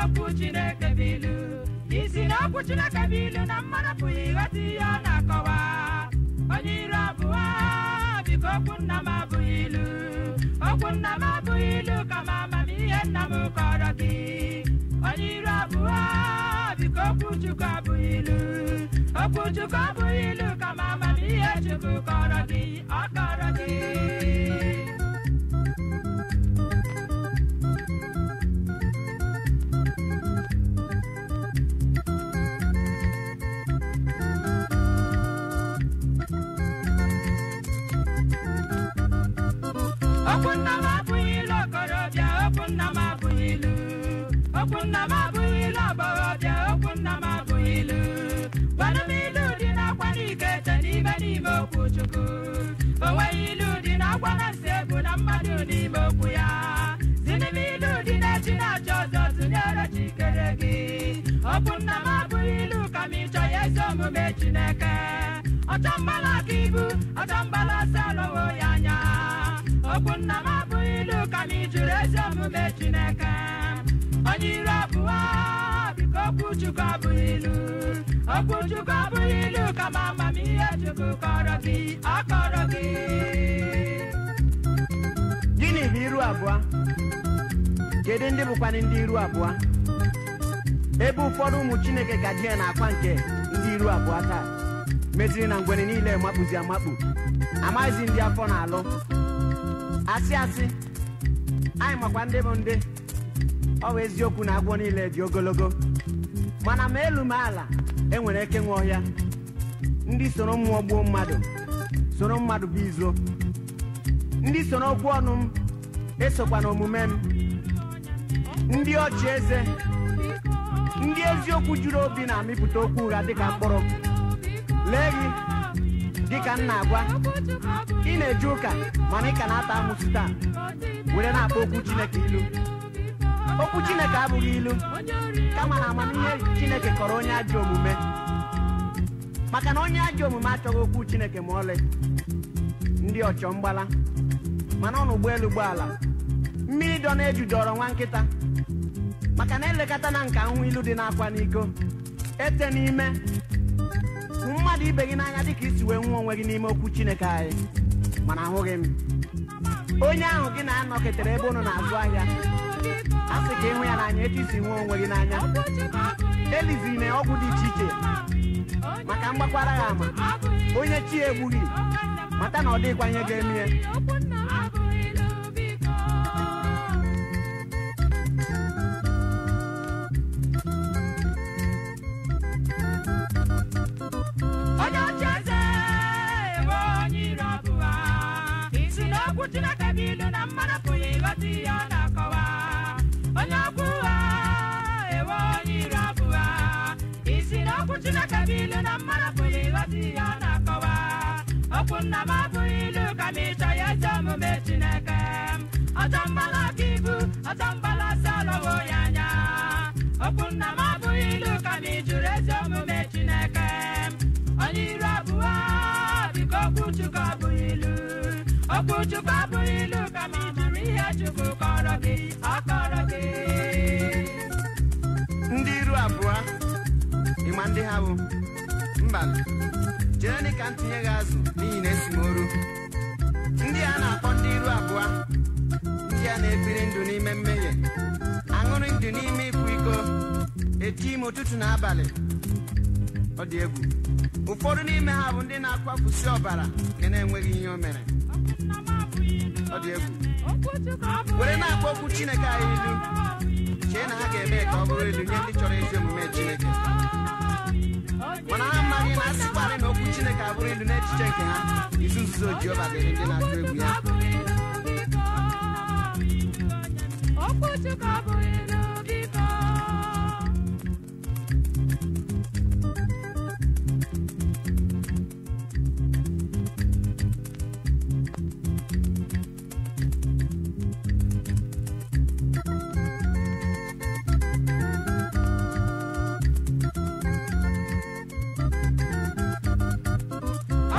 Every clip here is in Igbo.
n'okwu Chineke bụ ilu isi n'okwu Chineke bụ ilu na mmanụ pụghị ịghọta ihe ọ na-akọwa onye iru abụọ biko okwu nna m abụghị ilu okwu nna m abụghị ilu m amamihe nna m kọrọ gị onye iru abụọ biko okwu Chukwu abụghị ilu okwu Chukwu abụghị ilu m amamihe Chukwu kọrọ gị ọ kọrọ gị okwu nna m abụghị ilu okorobịa okwu nna m abụghị ilu okwu nna m abụghị ilu agbọghọbịa okwu nna m abụghị ilu gwanụ dị n'akwa n'ike ete n'ime n'ime okwu chukwu o nweghị ilu dị n'akwa na nsị egwu na mmadụ n'ime okwu ya Di n'ime ilu dị na-echi na-achọ ọzọ tụnyere chikere gị okwu nna m abụghị ilu ka ịchọ ya eze omume chineke ọchọ mbala aka ibu ọchọ mbala asa alọwo ya anya okwu nna m abụghị ilu ka m jụrụ ezi omume Chineke onye iro abụọ biko okwu Chukwu abụghị ilu okwu Chukwu abụghị ilu kama amamihe Chukwu kọrọ gị ọ kọrọ gị gịnị bụ iru abụọ kedu ndị bụkwana ndị iru abụọ ebe ụfọdụ ụmụ Chineke gaji ya na akwa nke ndị iru abụọ taa meziri na ngwere niile makpụzi amakpụ amaghịzi ndị afọ na-alụ asị asị anyị makwa ndị bụ ndị ọ bụ eziokwu na agwọ niile dị ogologo mana ma elu ma ala enwere eke nwe ọhịa ndị soro mmụọ gbuo mmadụ soro mmadụ bụ izo ndị soro okwu ọnụ m esokwa na omume m ndị ọchị eze ndị eziokwu juru obi na-amịpụta okwu ụgha dịka mkpụrụ lee gị dịka m na-agwa ị na-eje ụka mana ị ka na-ata amụsụ taa were na-akpọ okwu Chineke ilu okwu Chineke abụghị ilu kama na amamihe Chineke kọrọ onye ajọ omume maka na onye ajọ omume achọghị okwu Chineke ma ọlị ndị ọchọ mgbala mana na ụgbọelu ụgbọala mmiri dọ na-eju dọrọ nwa nkịta maka na elekọta na nka nhụ ilu dị n'akwa n'iko ete n'ime mmadụ ibe gị n'anya dịka isi wee nwa onwe gị n'ime okwu chineke anyị mana ahụghị m onye ahụ gị na-anọketere ebe ụnụ na-azụ ahịa a sị ka ịhụ ya n'anya etu isi nwa onwe gị n'anya elizi na ọgwụ dị iche iche maka mgbakwara ya ama onye chi egbughị mata na ọ dịghịkwa ihe ga-eme sinakabili na marafuli wasiyana kowa okunna mafuilu kibu ọ bank ka ntinye gị azụ n'ihi na esimoro ndị a na-akpọ ndị iru abụọ ndị a na-ebiri ndụ n'ime mmehie aṅụrị ndụ n'ime ịkwa iko eti ime ụtụtụ na abalị ọ dị egwu ụfọdụ n'ime ha bụ ndị na-akwafusi ọbara nke na-enweghị ihe o mere ọ dị egwu were na-akpọ okwu chineke anyị ilu chee na ha ga-eme ka ọ bụrụ elu nye ndị chọrọ ezi omume chineke I'm amaghị na asịkwarị na okwu chineke abụrụ ịdị n'echiche nke ha izu nzuzo Jehova dịrị ndị na-atụ egwu ya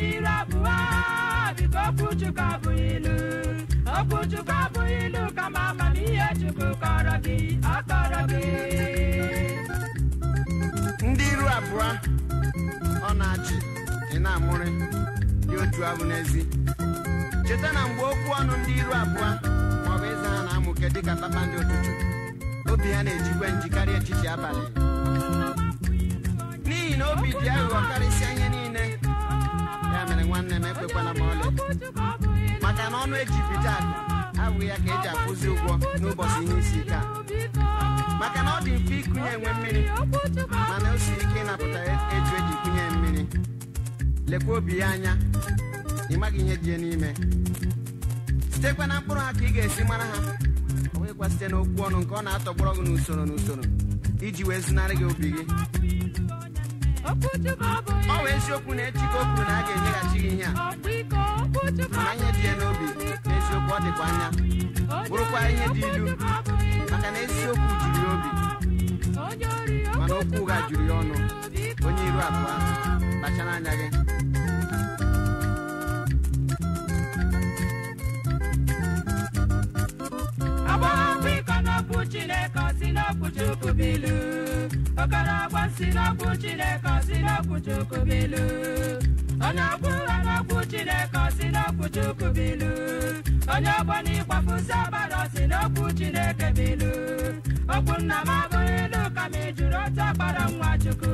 dị iru abụọ biko okwu abụghị ilu okwu Chukwu abụghị ilu kama amamihe Chukwu kọrọ gị ọ gị ndị iru abụọ ọ na-achị ị na-amụrị dị otu ahụ n'ezi cheta na mgbe okwu ọnụ ndị iru abụọ bụ ịza ha na-amụke dịka ndị ụtụtụ obi ha na-ejikwa njikarị echichi abalị n'ihi na obi dị aghụghọ karịsịa ihe niile maka na ọnụ eji pita abụghị ya ka e ji akwụzi ụgwọ n'ụbọchị ihe isi ike a maka na ọ dị mfe ịkụnye enwe mmiri mana o siri ike ịnapụta eju eji kụnye mmiri lekwa obi ya anya ị maghị ihe dị n'ime sitekwa na mkpụrụ ha ka ị ga-esi mara ha ọ bụghịkwa site n'okwu ọnụ nke ọ na-atọgbọrọ gị n'usoro n'usoro iji wee zụnarị gị obi gị ọ bụ eziokwu na echi ka o kwuru na a ga-enyeghachi gị ihe a ma ihe dị ya na eziokwu juru si n'okwu chukwu bilu okorobọ si n'okwu onye na ọgbọna ịgbafusi abalị ọsị n'okwu chineke bụ ilu okwu nna m abụghị ilu ka m jụrụ otu akpara nwa chukwu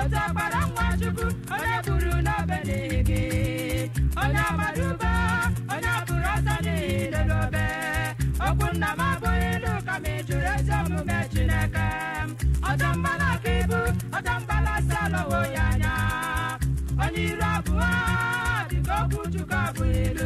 otu akpara nwa chukwu onye buru n'obe n'ihi gị onye agbara ube onye bụrụ ọsọ n'ihi n'obe okwu nna m abụghị ilu ka m jụrụ ezi omume chineke ọtọ mbala aka ibu ọtọ mbala asa alọwo ya anya onye iru abụọ dịka okwu chukwu abụghị ilu